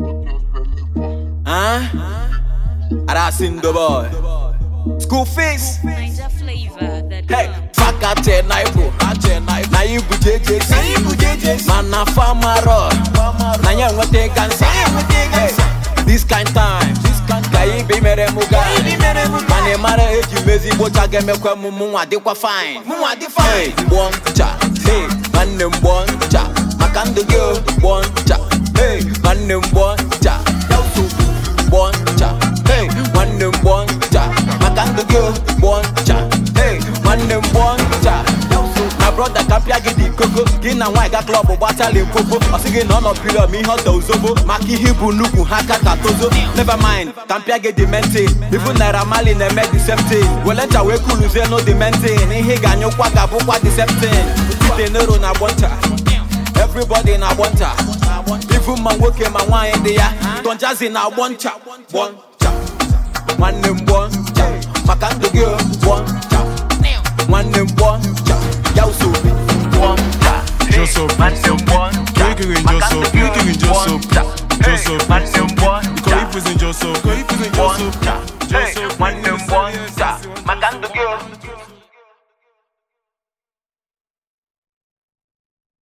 Huh? And ah, the boy. School fees. Hey, fuck a ten bro. Na you JJ. Na JJ. mana na Na you what uh. this kind time. bi mere muga. Man e eji mezi bocha gemekwe mu mu adikwa fine. fine. Hey, boncha. Hey, man ne boncha. Maka ndu nwanne m ncha ya nsogbu nwanne maka gị hey nwanne ncha na broda ka gị dị koko gị na nwaanyị ga klọb gbatala ekoko ọ na ọ nọ ma ihe ọ maka ihe bụ nnukwu ha ka ka tozo never mind ka mpịa gị dị mentin ibu naira mali na-eme wele ncha wee dị mentin ihe ị ga-anyụkwa ga-abụkwa diseptin ite n'ero na agbọ ncha na agbọ ivu ma nwoke ma nwaanyị dị ya Don Jazzy na ncha nwanne m ncha maka ndụ oh, ncha nwanne m ncha ya usoro gbọ ncha Joseph Joseph oh, Joseph Joseph Joseph Joseph Joseph Joseph